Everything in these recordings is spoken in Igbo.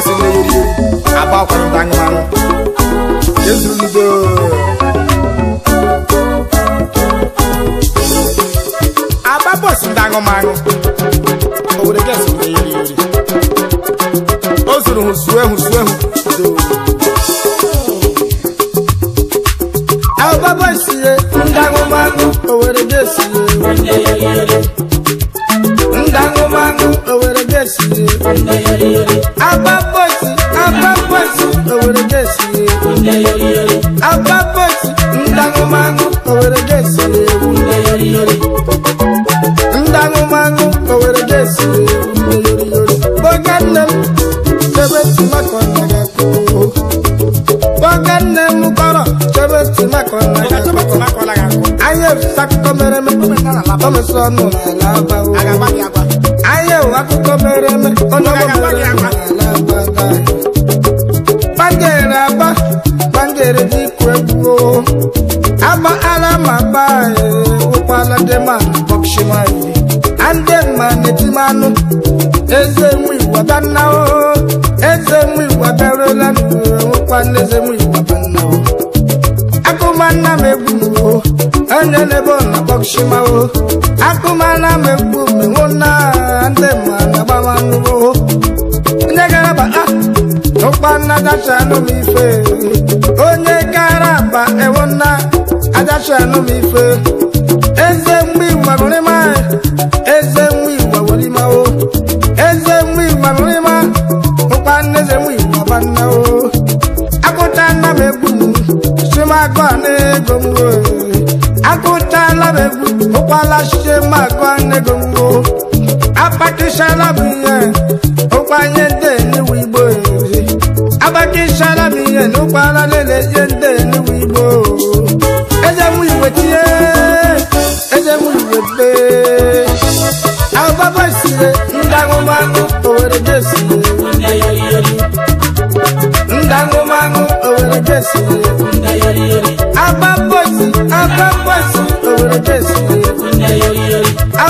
esi na eri agba akwara mba anụmanụ ezuludo agba bọs ndị anụmanụ obodo gesi na eri eri bọs ndị Agbábọ́ọ̀sì òwèrè jẹ́sì ewu. Agbábọ́ọ̀sì ńdánumánú òwèrè jẹ́sì ewu. Ńdánumánú òwèrè jẹ́sì ewu. Bọ́gá nne m chebe tìmakọ̀ nàgà kú. Bọ́gá nne m kọ̀rọ̀ chebe tìmakọ̀ nàgà kú. Ayé sakọ mere me, ọmọ sọnù àlàbà wo. Ayé akụkọ mere me. mmanụ eze nwa iwa bannawo eze nwa iwa darụla nwekwana eze nwa iwa bannawo akụmanna m egbu mwo onye na-ebe ọ na-akpọkchimawo akụmanna m egbu menwo na ndị ma na-agbamanụwo onye gara bata ah, ụkpanna dacha anụ m ife onye gara ba ewona adacha anụ m ife ụkwala chidemagụnego agbakịchala m ndị eluwe igbo na ụkwala lele ihe ndị eluwe igbo eze iwe tie iwe be ababa sire ndị ndị owere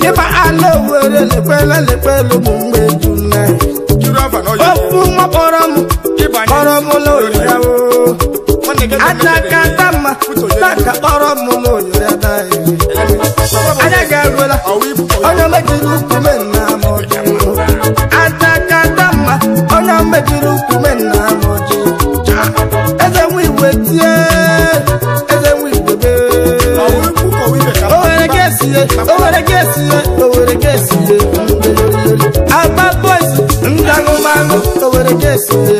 dịba ala were lekwela lekwela ụmụ mgbe juna ofu nwa kpọrọ m kpọrọ m n'oyira o aja aka dama taka kpọrọ m n'oyira daghị anya ga onye Owere ka esie Owere ka esie Aba boys ndị aṅụmaṅụ Owere ka esie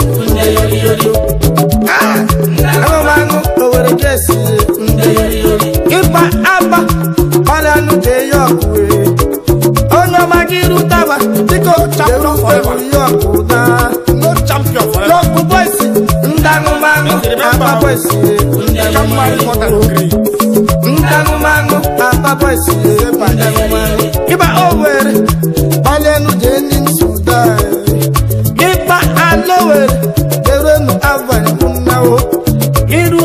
aṅụmaṅụ Owere ka esie ịba aba ọrịa anụ ga-eyi ọkụ onye ọma gị rutaba dịka champion no champion forever yọkụ boys ndị aṅụmaṅụ Alaba boys ndị ahụ iru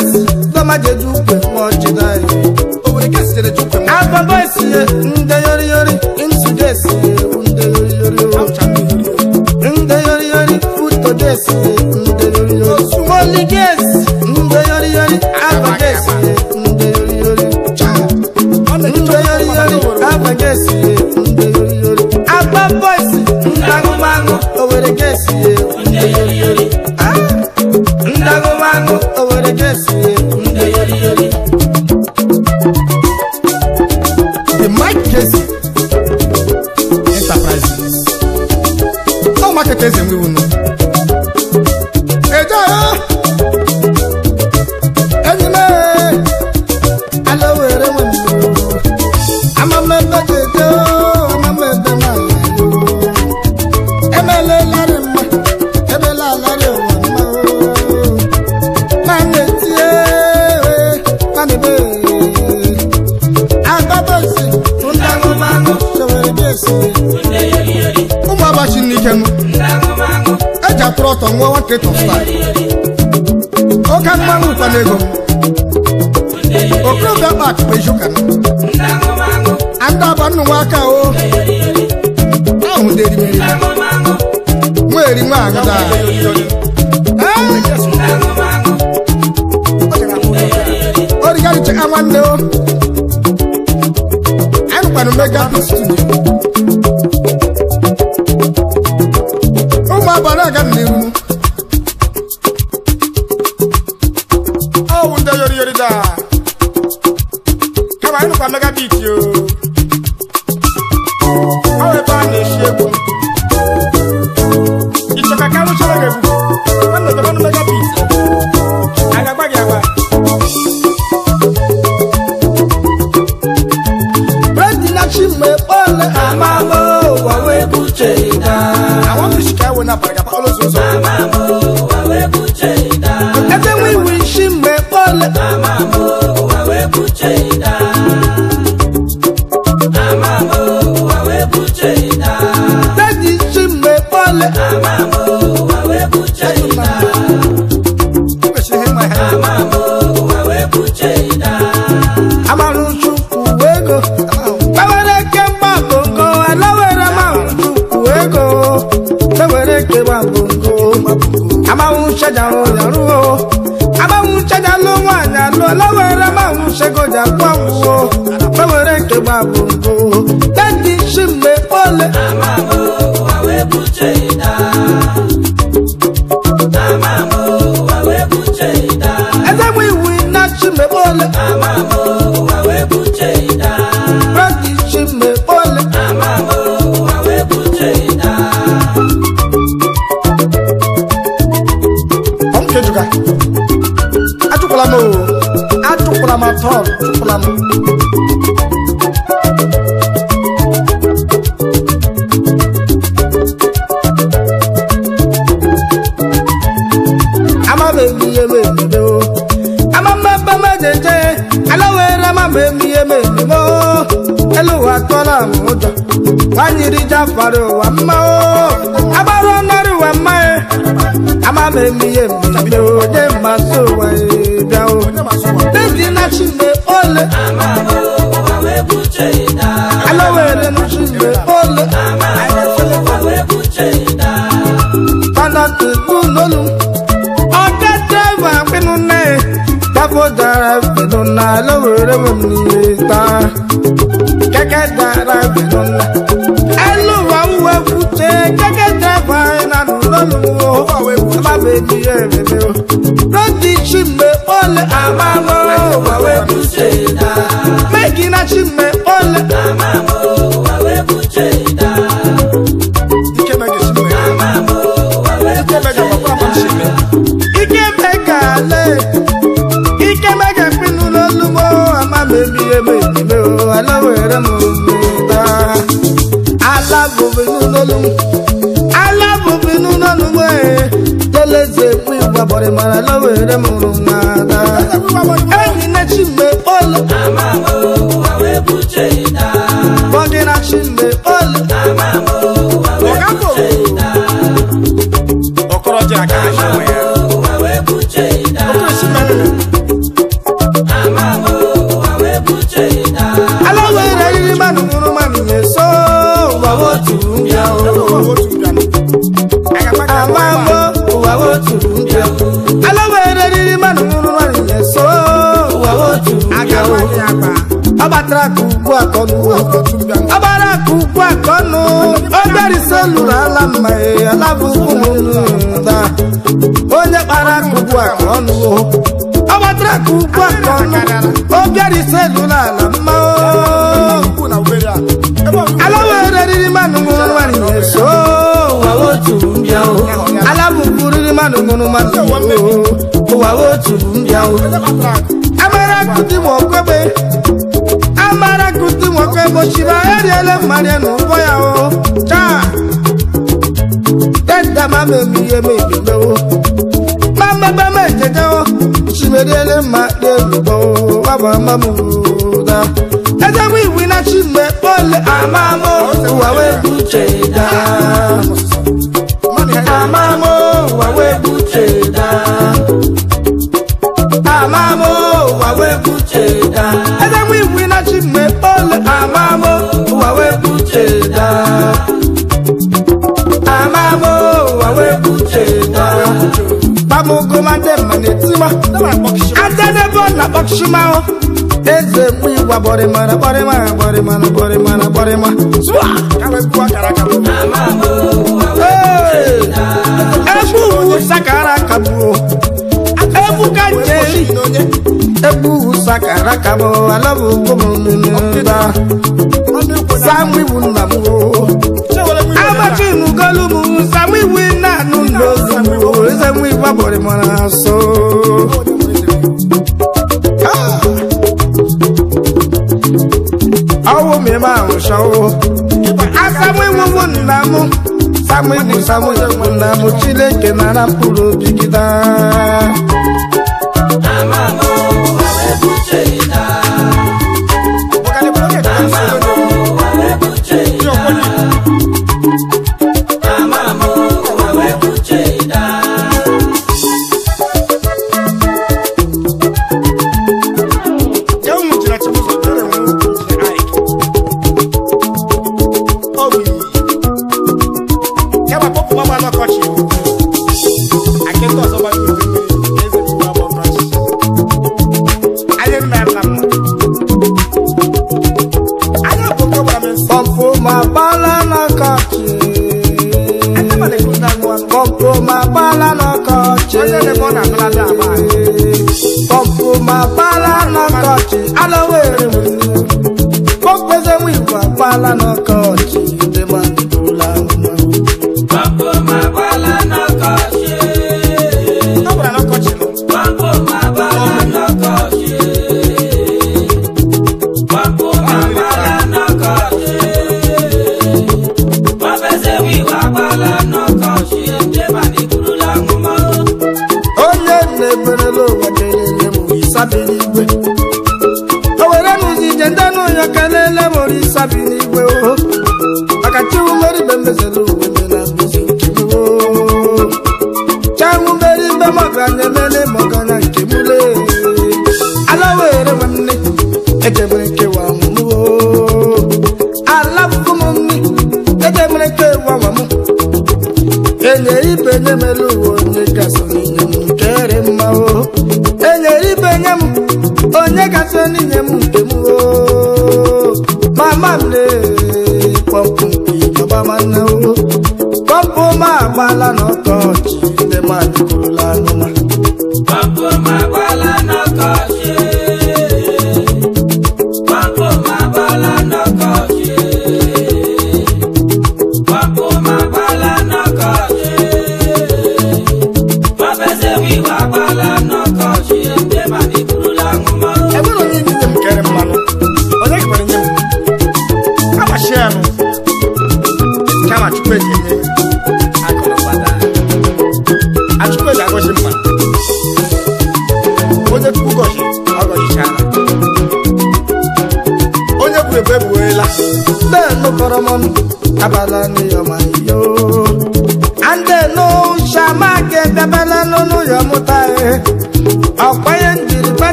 ndị ahụ. sí i. ¿Qué coquetos atụpụla m atụpụla m atọ tụpụla m amambebamejeje alawere mama emihe m emimo elu ụwa tụọla m ụjọ nwanyị rija fara ụwa mmanwụ agbára ọ̀nàrí wà máa ẹ̀ a máa mẹ́mí yé mi ló dé máa sọ wẹ̀ ole. Alawere n'usume ole. Panati bulolu. Ọjọ́ dẹ́gbà pinnu náà. Dábò dára pinnu náà. Alawere wẹ̀ mi ta. Kẹ́kẹ́ dára pinnu náà. méjì ẹ̀rẹ̀ mi o. Rọ́ndì Chime ole àmàmọ́ wàwé bùjẹ́ ìdá. Mẹ́gìnà Chime ole àmàmọ́ wàwé bùjẹ́ ìdá. Ike mẹ́gì Chime. Àmàmọ́ wàwé bùjẹ́ ìdá. Ike mẹ́gì papa mọ̀ Chime. Ike mẹ́gà alẹ́. Ike mẹ́gà pinnu lọ́lùmọ́ àmàmẹ́bí ẹ̀mẹ́ ìdílé o. Aláwọ̀ ẹ̀rẹ́ mọ̀ ọ́ ta. Alágbòbinú lọ́lùmọ́. ọlaeze kwu ịgbagbọrị mara lawere m hụrụ n'ada enyi na chi mgbe kpọlụ Abarak ugwu akọnu Abarak ugwu akọnu oberise lụrụ e, ala mma alabụ ụmụnta onye kpara ugwu akọnu Abarak ugwu akọnu oberise lụrụ ala mma alawere riri mmanụ nwụrụ nwaanyị na-eso alabụ riri mmanụ nwụrụ nwaanyị ụwa otu mbịa Abarak dị ma okwebe mara kusi nwoke boshiba eriele mmadụ n'ụgbọ ya o taa dedama memihe mebimewo mamabama ejejewo chimeriele mma debigbo wabamamda ezegbo iwu na chimgbe kpole amamo ụwa wee buche daa amụgoma ndị mma na-etiwa adanebo na kpọkshụmanwụ eze mgbe igwa gbọrịmara gbọrịmara gbọrịmara gbọrịmara gbọrịma egwu sakara kabụ egwu ka nje egwu sakara kabụ alọbụ ugbo m nne nne nne babore mwanaso ah. awo mi ma n ṣawo asamu iwuwu nnamu samu iwu samu iwu nnamu chileke nara mkpụrụ obi gị daa. Amamo, awe buche ina. bala no touch the man.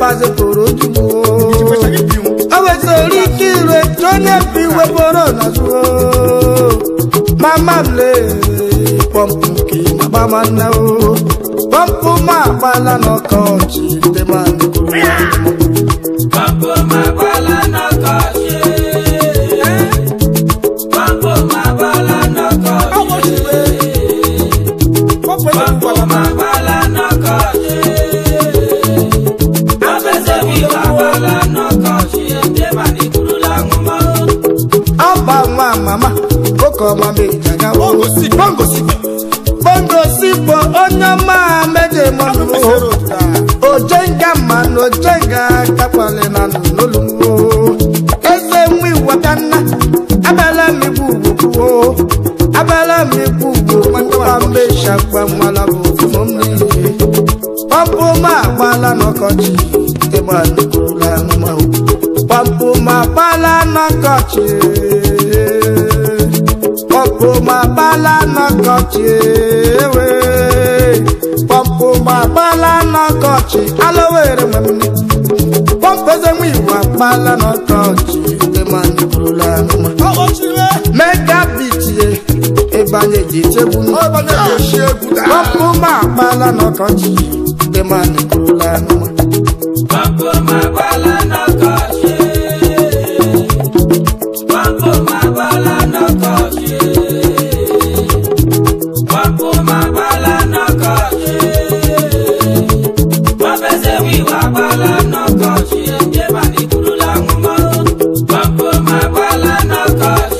pàṣẹ kòrò jù o. Ọwọ́ torí kí ìrè tó lè fi wé bọ́rọ̀ lásán o. Màmá lè pọ́ǹpù kí bàbá máa ná o. Pọ́ǹpù máa pa lánàá kan ò tí máa. kọchie ma bala na kọchie ewe pọpụ ma bala na kọchị alowere mamini pọpụ eze nwe iwu akpala na kọchị temani bụrụla anụma mega bitie ịbanye ji chegbu pọpụ ma akpala na kọchị temani bụrụla anụma Abuela no cost.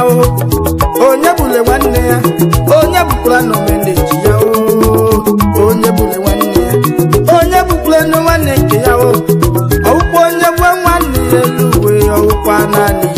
o onye bule nwanne ya onye bukwara na omeneji ya o onye bule nwanne ya onye bukwara na nwanne ya o bụkwa onye gwe nwanne ya elu uwe ọwụkwa naanị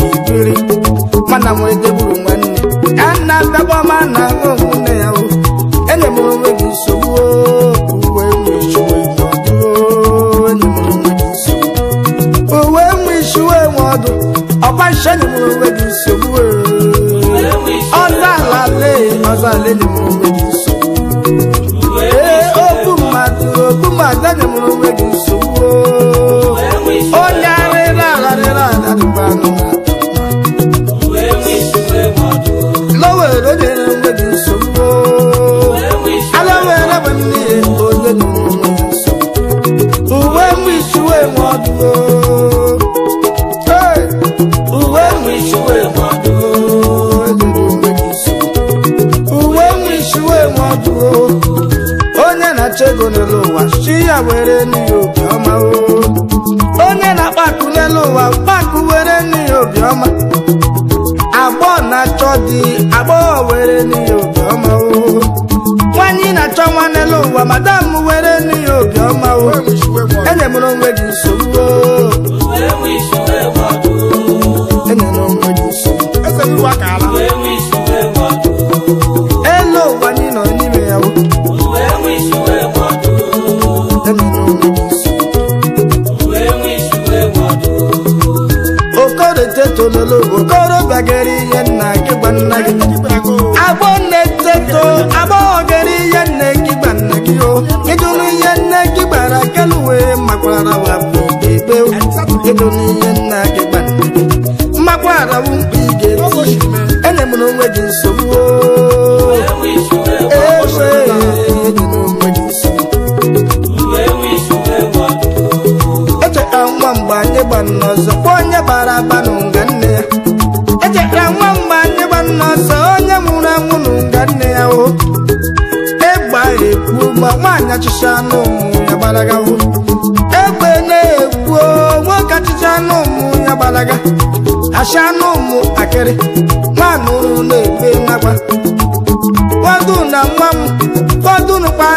were onye na-akpa akụ n'elu ụwa mkpakụ were nnu ya obiọma agbọghọ na-achọ di agbọghọ were nnu ya nwanyị na-achọ nwa n'elu ụwa madam were nnu ya obiọma enyemụrụ onwe gị nsogbu tololo okorobịa gara ihe nna gị gwa nna gị n'ọsọ onye gbara nne ya nwa onye nwụrụ anwụ n'ụga nne ya E egba egwu ma nwaanyị anụ ụmụ ya gbalaga egbe na-ekwu nwoke achịcha anụ ụmụ ya gbalaga anụ akịrị na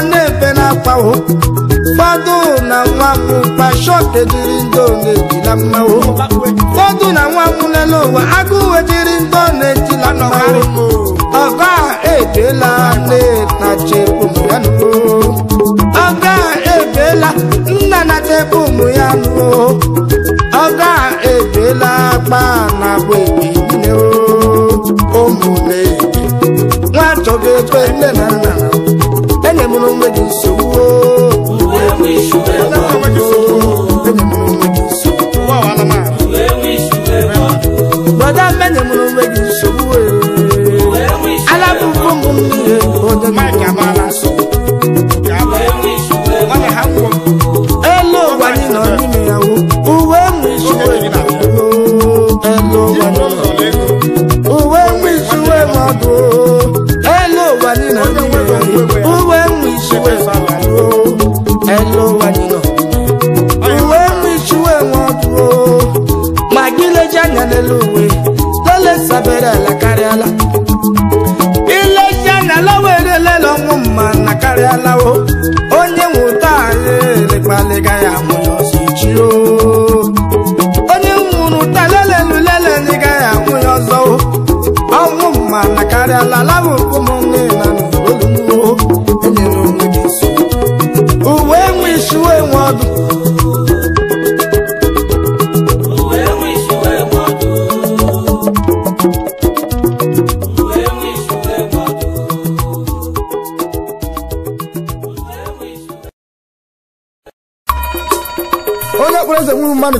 na Ụfọdụ na nwa m kpashọk ejiri ndo na ejila mmanwụ ụfọdụ na nwa m lele ụwa agụụ ejiri ndo na ejila mmanwụ ọgọ a ebeela nna chekwu ụmụ ya nụ ọgọ a ebeela nna na chekwu ụmụ ya nụ ọgọ a ebeela akpa na abụ ebi nne ụmụ na-ebi nwa chọga ebe nne na nna ala karịala ilecha na lawa erelele ọnwụ mma na karịalawo onye nwụta anyị elekpaliga ya amụ n'ọsọ ichi onye nwụrụ ụta ndị gaghị amụ ya ọzọ ọnwụ mma na karịala lawa okomọ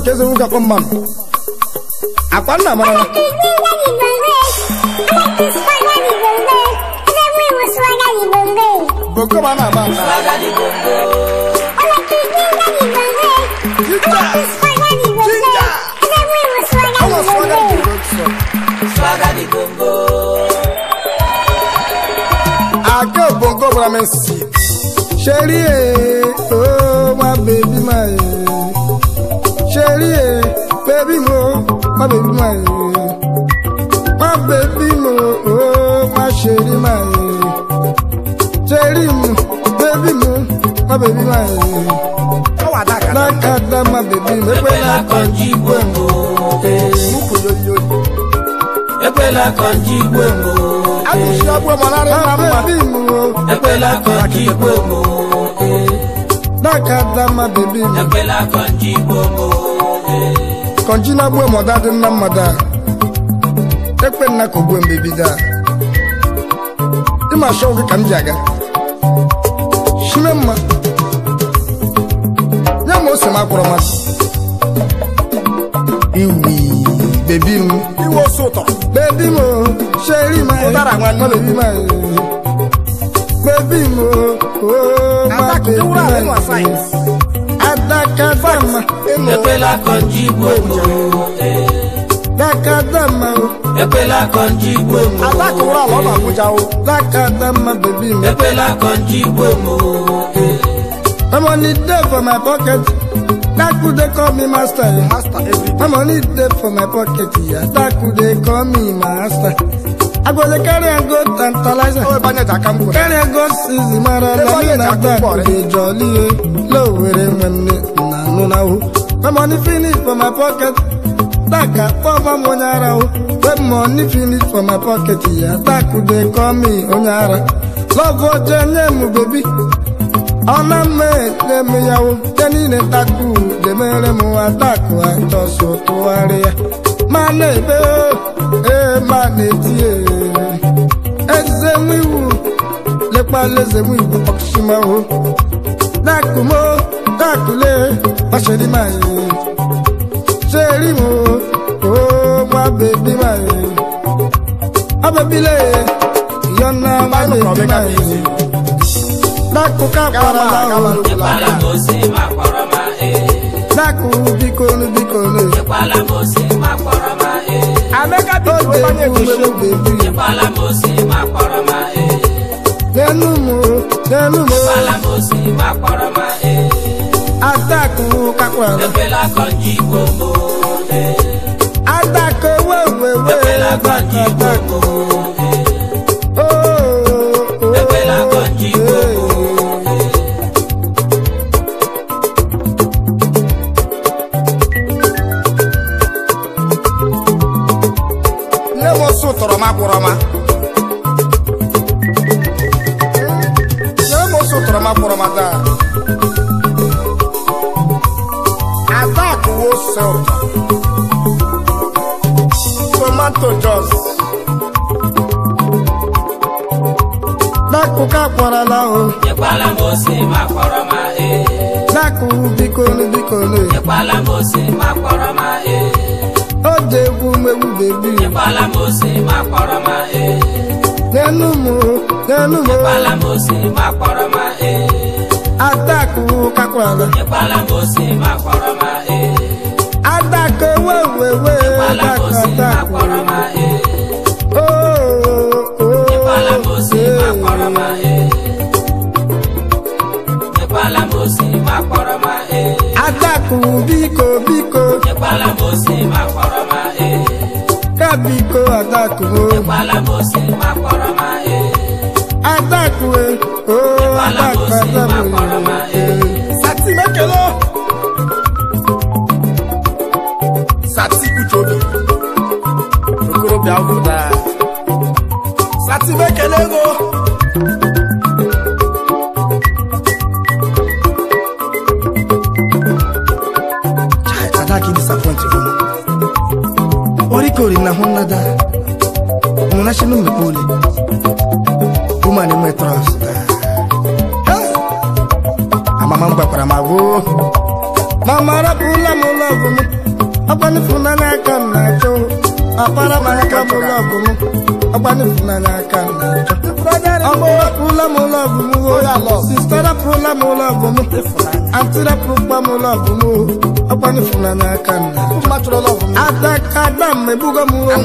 mmadụ ka eze nwoke akọ mmadụ akwa nna mara bokoma na-agba aka bongo bara m si cherie máa yẹ. mo, gbé bímọ ó má ṣe rí máa yẹ. Ṣé rí mu bébí mu má bèbí máa yẹ. Lákàtà má bèbí mu pé lákànjí gbé mu. Ẹgbẹ́ lákànjí gbé mu. A kò ṣe ọgbọ́n mọ́ lára ẹ̀ máa mú wa. Ẹgbẹ́ na gbuo mọda dị mma mmada ekpe nna ka ogbuo mgbe bido a ịma shọ ka m ji aga shime mma nye m ose m akpọrọ masị iwi bebi m iwe ose ụtọ bebi m sheri m bebi m oh, oh, bebi m o ma bebi m dakadama ekwela ka ọjị igbo dakadama ekwela ka ọjị igbo atakụrụ ala ọ na-agwụcha o dakadama bebi m ekwela ka ọjị igbo money dey for my pocket daku dey call me master my money dey for my pocket ya daku dey call me master. I go ego carry am go tantalizer. Carry am go sizi mara eh. were na anụ na ahụ. My money for my pocket. Daka pọba onye ara o. When money for my pocket ya taku dey call onye ara. oje nye m Ọ na mme ekpe ya demere ezemu iwu lekpala ezemu iwu ọkụsimawo lakumo lakule akpọrọ ma ee. Atako kakpọrọ. Ebela kọji gbogbo Atako wewewe. Ebela kọji gbogbo ekwu bikole bikole ịkwala m osi ma kpọrọ ma ee oje egwu mmegbu bebi ịkwala m osi ma kpọrọ ma ee n'elu m n'elu m ịkwala m osi ma kpọrọ ma ee atakụ kakwara ịkwala m osi ma kpọrọ ìpalamọ́sí máa pọ̀rọ̀ máa ẹ̀. o. ìpalamọ́sí máa e. o àtàkùn àtàkùn ẹ̀. sátì mi. kókóró bí a wù mon da Mon ache nou me poli Oumane me tros Amama mba pra ma wo ụlọ ra pula mo na kan na cho Apara ma ka mo love mu na kan na cho atịrapụkpa m lọbụ m ọgbanfụla n'aka m atakada m ebugo m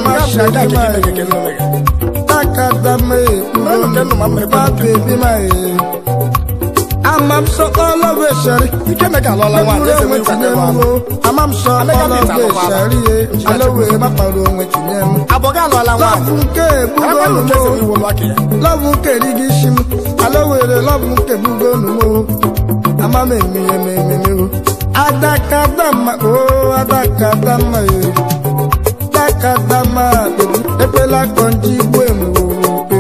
takada m ekpurobabebi m amam sọ ọlọ́wọ́ ẹ̀ṣẹ̀rí. ike mẹ́ka lọ́la wa ní ẹsẹ̀ wíńtà ní wa. amam sọ ọlọ́wọ́ ẹ̀ṣẹ̀rí ye alọ́wọ́ ẹ̀ bá pariwo ohun ẹ̀tì ní ẹnu. àbọ̀gá lọ́la wa. lọ́fun kẹ́ gbogbo olùmọ̀ lọ́fun kẹ́ rígi simu alọ́wọ́ ẹ̀ lọ́fun kẹ́ gbogbo olùmọ̀ ma me mi ye me me me o. Oh. Adakadama o oh, adakadama ye. Eh. Adakadama bebi ebela kọnji bu emu eh. o pe.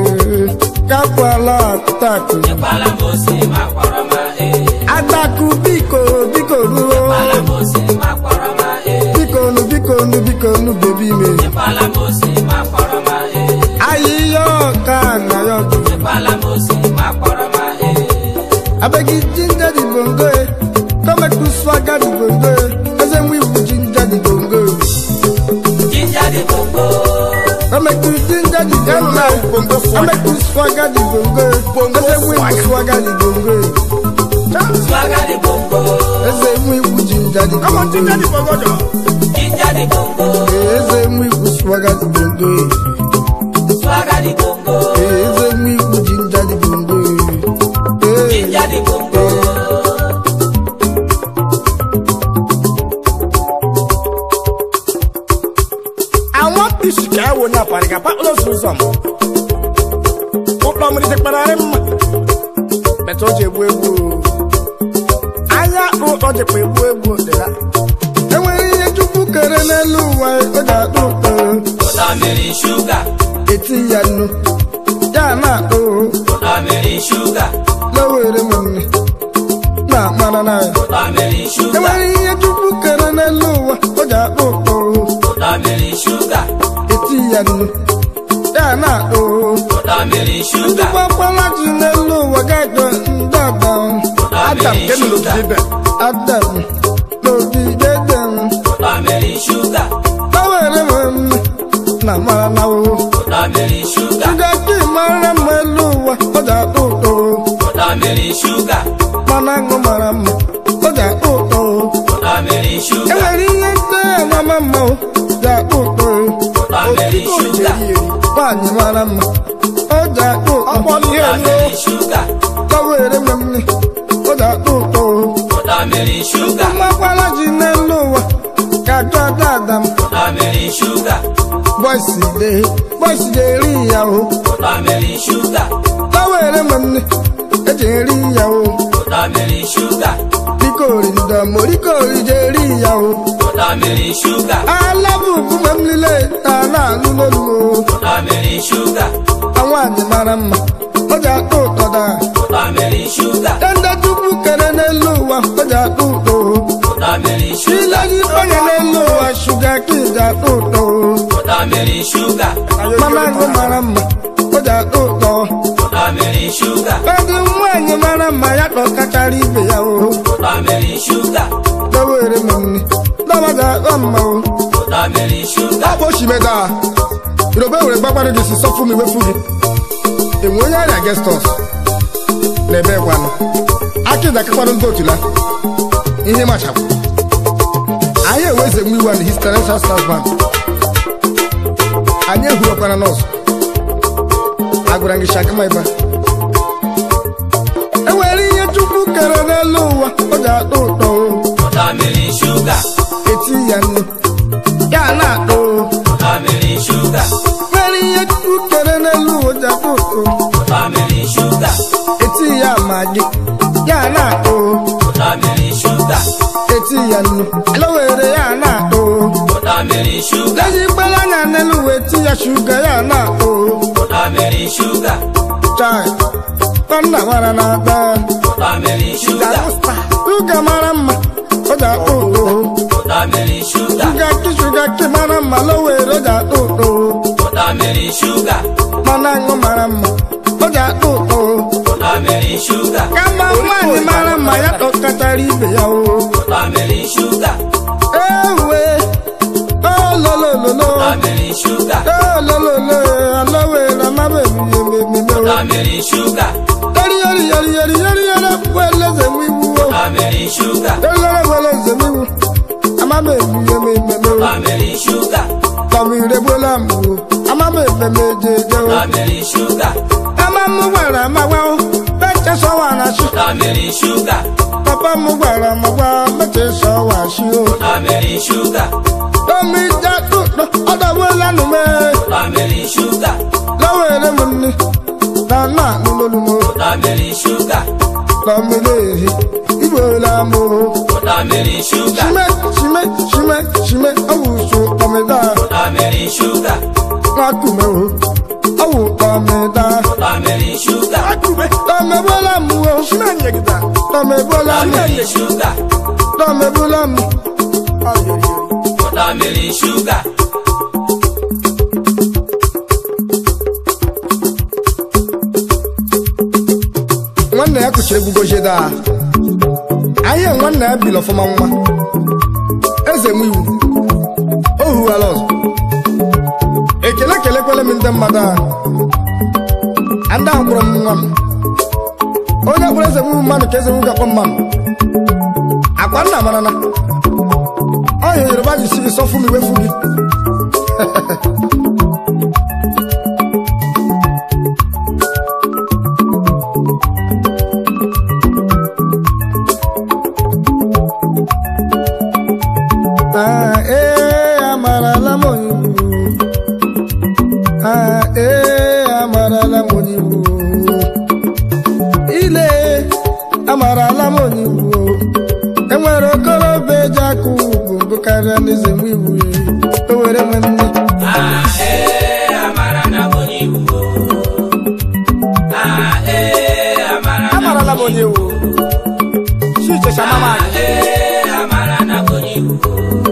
Kakwala atako. Ìpàlà mo sì máa pọ̀rọ̀ eh. máa he. Adaku biko biko duro. o. Ìpàlà mo sì máa pọ̀rọ̀ máa he. Biko nu biko nu biko nu bèbí mi. abeg e ginger the bongo eh? come make we swagger the bongo eh as in we will ginger the bongo. ginger the bongo. come make we ginger the eh? bongo come make we swagger the bongo eh as eh? in we will swagger the bongo eh. swagger the bongo. as in we will ginger the bongo. come on ginger the bongo ginger the bongo. as in we will swagger the bongo jẹnu dáná o. kódà mẹ́rin ṣúgà. ìdúpọ̀ pọ́nlá ti lè lo wọ́gá ìgbọ̀n ń dàgbà. adam kẹ́mi ló ti bẹ̀ adam. anyịmara mma ọ ji akpụ ọkpọlụ ihe elu kọwa ere mgbe m ni ọ ji akpụ ụtọ o mmakwara ji n'elu ụwa ka jụ ada adam bọisi de bọisi de eri ya o kọwa ere mgbe m ni eji eri ya o rikori ndọ mo rikori je ri ìyàwó. Bọ́dà mi rí ṣúgà. Alábùkún mọ̀ nílé ta náà nínú Tamarind sugar. Àwọn àdìmára mọ̀, ọjà kò tọ́da. Tamarind sugar. Dandaju bukere n'elu ụwa, ọjà kò tó. Tamarind sugar. Ilaji banye n'elu ụwa, suga kì í jà kò tó. Tamarind sugar. Mama ló mara mọ̀, ọjà kò tọ́. Tamarind sugar. Bẹ́ẹ̀ni nwanyị mara mma ya kọ kachara ibe ya o. Tamarind sugar. Lọ́wọ́ èrè mọ̀ ni, lọ́wọ́ jà kọ́ mọ̀ o. Tamarind sugar. Ọ bụ osimiri taa. Yoruba were gbagba no dey sọ fún mi we fun mi. Èmi o yára against us. Lẹ́bẹ̀ wa ni. Akéde akẹ́kọ̀ọ́ ló ń gòtùlá. Ihe ma ṣàpọ̀. Anyị eweze nwa iwe na his financial staff bank. Anyị ehurokwana nọọsụ. Agwara gị shaka ma ịba. E nwere ihe Chukwu kere n'elu ụwa ọ ga-atọ ụtọ. Ụtọ mmiri shuga. Eti ya nnu. elewere ya na-akpụ ezigbola anya n'elu wee tinye shuga ya na-akpụ chai tọnda nwara na-aba shuga mara mma ọ ga-akpụ ụtọ shuga ki shuga ki mara mma lowere ga-akpụ ụtọ mana aṅụ mara mma ọ ga-akpụ ụtọ ka nwaanyị mara mma ya tọkọtara ibe ya o Family sugar. Don't let I'm a man, you Family sugar. Family the I'm a man, the Family sugar. I'm a mobile, I'm a wow. a sugar. Family sugar. Papa I'm a wow. Better so on a sugar. Family sugar. Don't meet that Family sugar. Family sugar lámú. Bọ́dà sugar. rí ṣúgà. Ṣímẹ́ ṣímẹ́ ṣímẹ́ ṣímẹ́ awùsùn ọmọ ẹ̀dá. Bọ́dà mi rí ṣúgà. Wọ́n á kù mẹ́wọ̀n. Awù ọmọ ẹ̀dá. Bọ́dà mi rí ṣúgà. Wọ́n á kù mẹ́. Tọ́mẹ bọ́lá mu o. Ṣímẹ́ yẹn kìtà. Tọ́mẹ bọ́lá mu. Bọ́dà mi rí ṣúgà. Tọ́mẹ bọ́lá mu. Bọ́dà mi rí ṣúgà. Nwanne ya kụchiri egwugo jeda ahịa nwanna ya biri ọfụma nwa eze nwe iwu o hughara ọzọ ekele kelekwele m ndị mmadụ ahụ ndị ahụ kpọrọ m nwa m onye kpọrọ eze nwe mmanụ ka eze nwe gakwa mmanụ akwa nna marana ọ hịa yoruba ji si gị m iwefu gị ee eh, eh, amarala m onye Igbo ile amarala m onye Igbo enwere okorobịa eji akụ ugwu bụ karịa n'eze m Igbo o m nne ah, eh, amarala m onye Igbo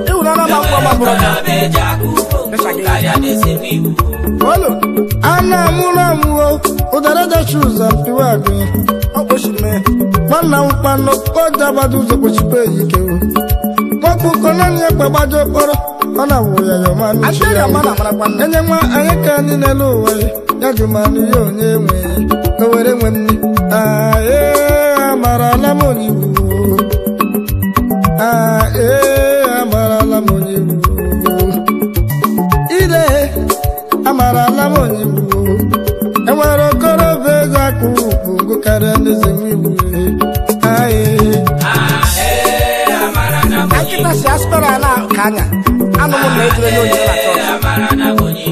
Ewu na ọlọ́mọ ń pọ̀ ọmọ bùrọ̀dá. Olu, ana amụrụ amụọ, ụdara dachi ụzọ mpiwa agụnyị, ọ nwanna m kpanụ, ọ ụzọ kpochibe ike o. ụkọ naanị ya gbagbajọ kpọrọ, ọ na-awụ ya ọma ya. Enye nwa anyị ka anyị na-ele ụwa ya, ya jụmanụ ya onye enwe, o were nwe m anya ana m na ejere onye na chọọchị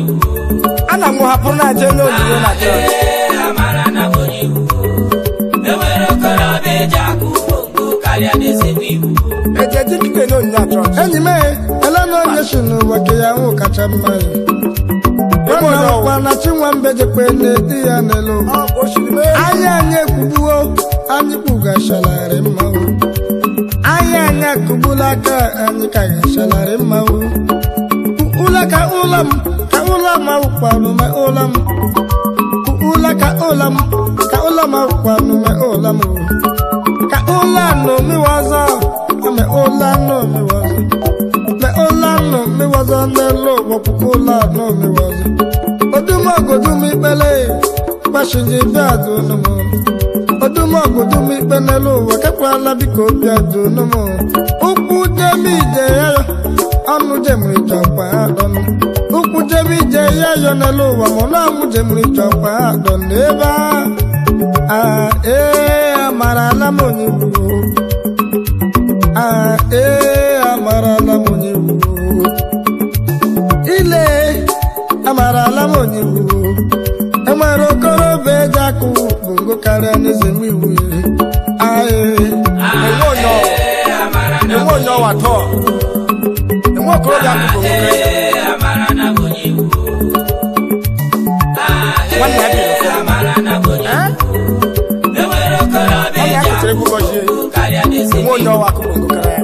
ana m hapụrụ na aje onye onyinye na chọọchị ejeji dike na onyinye na chọọchị enyi m elena onye si n'ụwa ke ya nwụ kacha mma ya ọkwa na chinwambe jekwe na di ya n'elu anyị anyị ekwubuo anyị kpugachararị mma kubulaka anyikaya shalare mau Kuulaka ulam ka ulam mau kwanu me ulam Kuulaka ulam ka ulam mau kwanu me ulam Ka ulano mi waza me ulano mi waza Me ulano mi waza ne lo no mi waza Oduma godumi bele Bashinji badu no mo odumọgụ dum ikpe n'elu ụwa kekwala biko obi ajụnụ m ụkwụ jemi ije ya ya ọnụ jemiri chọkwa adọnụ ụkwụ jemi ije ya ya n'elu ụwa ma ọnụ ọmụ jemiri chọkwa adọnụ ebe a ee amarala m onye gburu a ee amarala m onye gburu ile amarala m onye gburu e nwere okorobịa eji akụ amara ne se mi wuli aye ewo yɔ ewo yɔ wa tɔ ewo kuro ya ko gbogbo rɛ wani ya bi lɔfɔ eh? wani ya kutere gbogbo si ewo yɔ wa ko gbogbo rɛ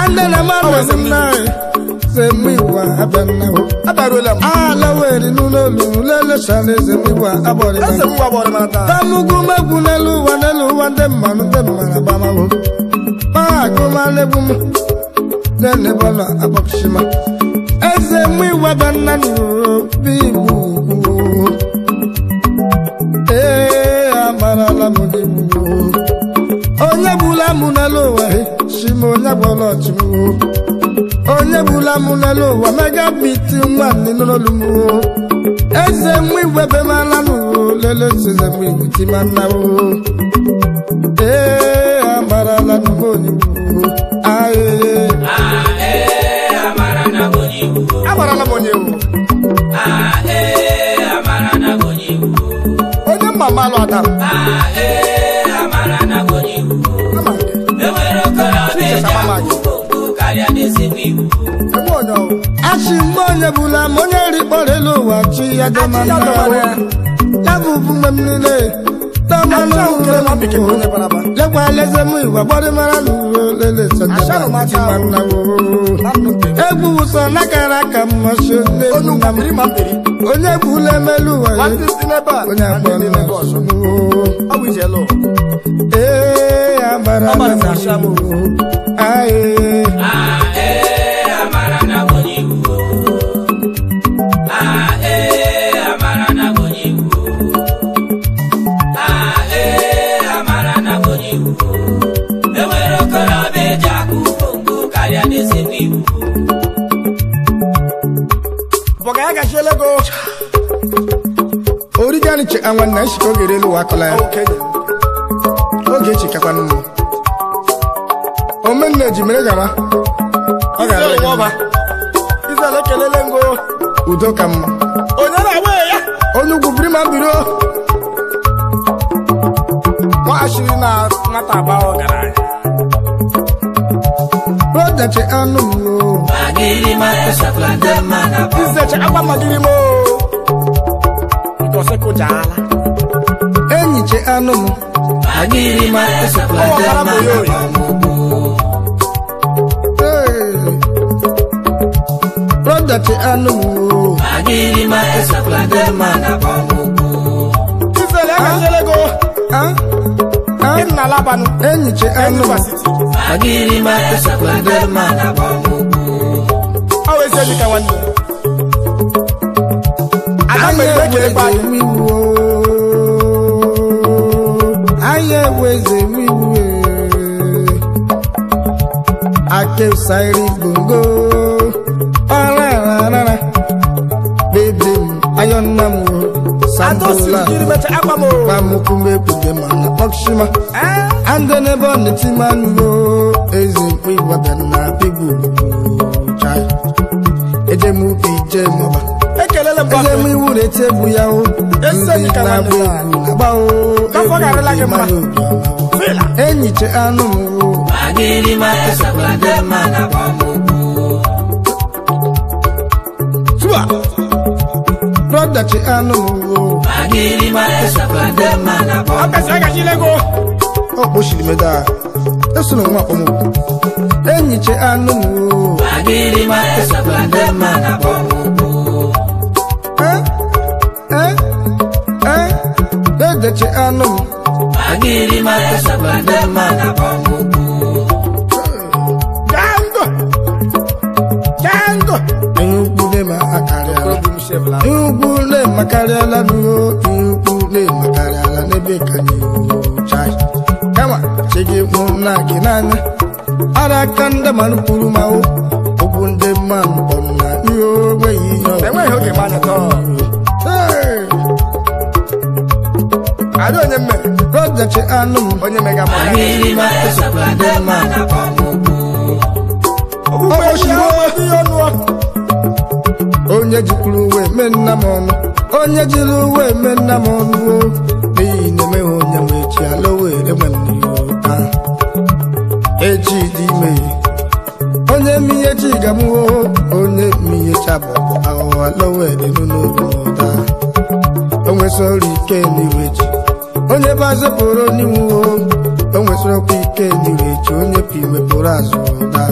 andele ma mɛ sɛ mi na eze m igwe abịa nnewu abarụla ala weri n'ụlọ olulu eze n'elu ụwa n'elu ụwa ndị mmanụ ndị mmanụ agbamawo maagụmanegbu m nenebọla akpọpụchima eze m n'obi igbo ee onye gbula n'elu ụwa si m onye gbọrọ onebulamulelo wamega biti nwanne n'ololumo eze mwe webe malanụ lele seze mwe witi mannawo ee amara na mboniwu ae amara na mboniwu onye mma adam ae chi mgbe onye bụla ma onye rikpọrọ elu ụwa chi ya dị ya bụ m niile lekwa eleze gbọrị mara na uwe leleegwu na kara aka mmasị onye emelu ụwa onye ee ahụ na-echi Ogechi nwanne nchika oge elu akọla ya Ogechi kakwanụ m omenna ji mere gaba ọ ga-ara izele kelele ngo udo ka mma onye na-agba ya onye ugwu biri ma biri nwaghachiri na nwata agba ọgaranya rodachi anụ m izechi agba magiri m sekujala enyi che anumu agirima esokwadema broda che anumu agirima esokwadema na pamuku ifele akaselego ah ah inna labanu enyi che anumu agirima esokwadema na pamuku awese nikawanda anyị eweze m igbu anyị eweze m igbu akesairi gbongo ọrararara bebe m ayọnna m sambola pamukumekwude mana ọchịma andị n'ebe ọ na-eti manụ eze mkpu ịgwabịa na bigbu chai eje m ubi ije mụba eje m iwu na-eti egwu ya o ndị na-agba agba o enyiche anụ m brọdachi anụ m ọ kpochiri m daa esoro nwa akpọmụkwụ enyiche anụ m ma Agirima Esabla Dema na Bomubu Eh, eh, eh Dede che ma Agirima Esabla Dema na Bomubu Django Django Nukule ma akarela Nukule ma akarela Nukule ma akarela Nebe kanyo Chai Kama Chege na kinana Ara kanda manupuru mao mma na ihe onweghị ihe ada onye mmere ọdachi anụ m onye mega onye jikwuru uwe mee nna m ọnụ onye jiri uwe mee nna m ọnụ n'ihi na emeghị onye ma echi ala were nwanne ya echi onye mihe chi gamuo onye mihe chabapụ ahụhụ lowedịnụlọta onwesịrị ike n'iwe ji. onye bụ azụ pụrụ n'iwu onwesịrịkwa ike n'iwe ji onye bụ iwe azụ ụta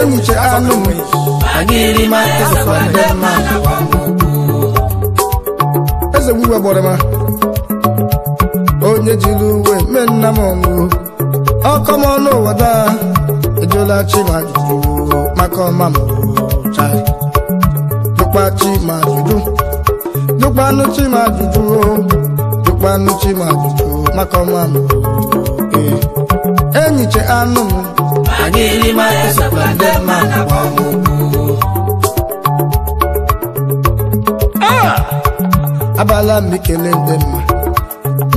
enyiche anụ eze gbuwe gbọrọma onye jiri uwe mee nna m ọkọ m ọnụ ụwa daa alụla chima ọrụ chima jụjụ chima chima maka ọma enyiche anụ m ah! abala ikele ndị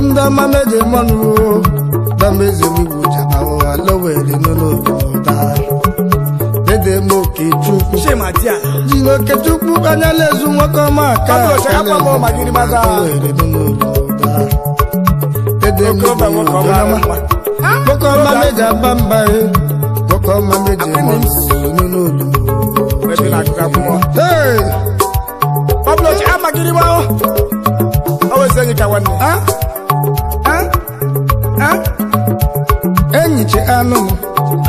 mma ndị ọma meje mmanụ dama eze m igwu jaba ụwa lowere n'ụlọ jiri okechukwu anya ezu nwoke ọma aka ọma meji aba mba nwoke ọma meji enyichi anụ m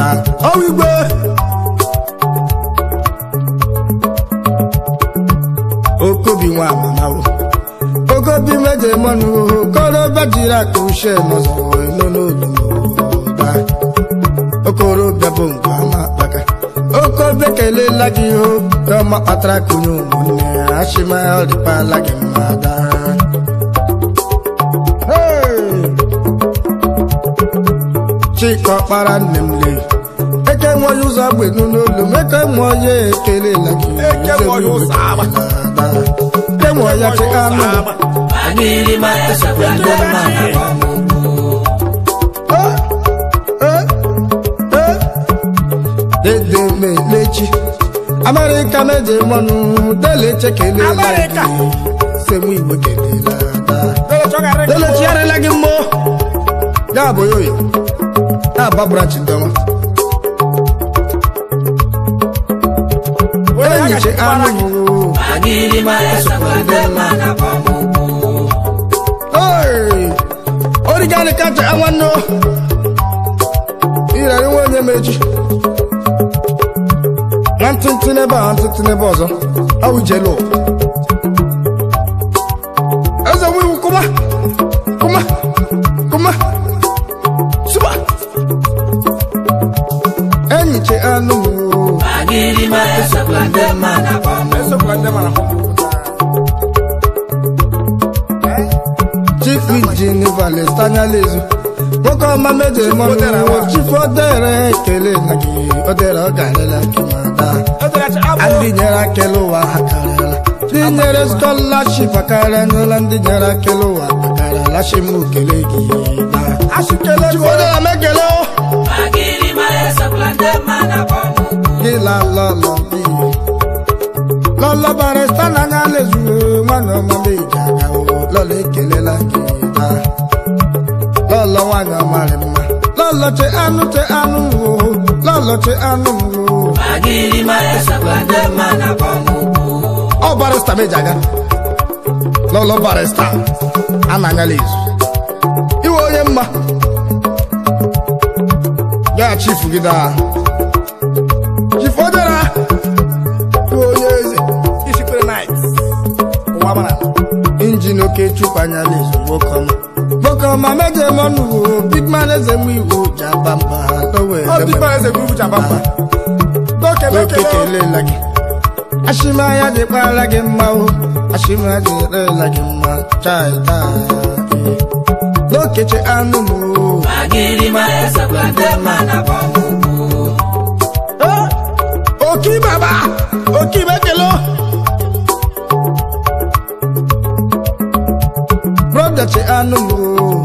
na ọwa igwe okobi nwa amanawo okobi meje mọnụ okorobịa jiri aka uche n'ọzọ eno n'olu n'ụda okorobịa bụ ngwa ama kpaka okobe kelela gị obi ọma kpatara ka onye ụmụnne ya achịma ọ dịkwala gị a daa nne m lee nwanyị ụzọ agba n'olu meke mụọ ya ekelela emụọ ya chekanụ dedemechi amerịka meje mmanụ deleche kelela semu kelela delechi gị mmụọ ya abụghị oyi na-aba branch anụ origani kacha nwanne irarị nwa onye na ntụntụ n'ebe a ọzọ awụjelo tanyalezu nwoke ọma meje chifodere ekele na gị odere ọ garịla kemada ndị nyere akele ụwa ha karịla ndị nyere skọlaship akarịa n'ụlọ ndị nyere akele ụwa akarịla shim ukele gị chifodere gị lalọlọ lọlọbarịsta na anya lezuo nwana ọma meje aga lọla ekelela gị mma nwaanyị amarị mma lọlọchi anụ che anụ o lọlọchi anụ o ọ barịsta meji aga lọlọ barịsta a na izu iwe onye mma ya chifu gị daa chifu ojera iwe onye eze injin oke chukwu anyala izu nwoke ọma Okoma meje monu big man eze mu iwo jabamba towe oh big man eze mu iwo jabamba doke doke kele lagi ashima ya de pala ge mma o ashima de re lagi mma chai ta doke che anu mu magiri ma esa kwate mana bomu oh oki baba oki bekelo brother che anu mu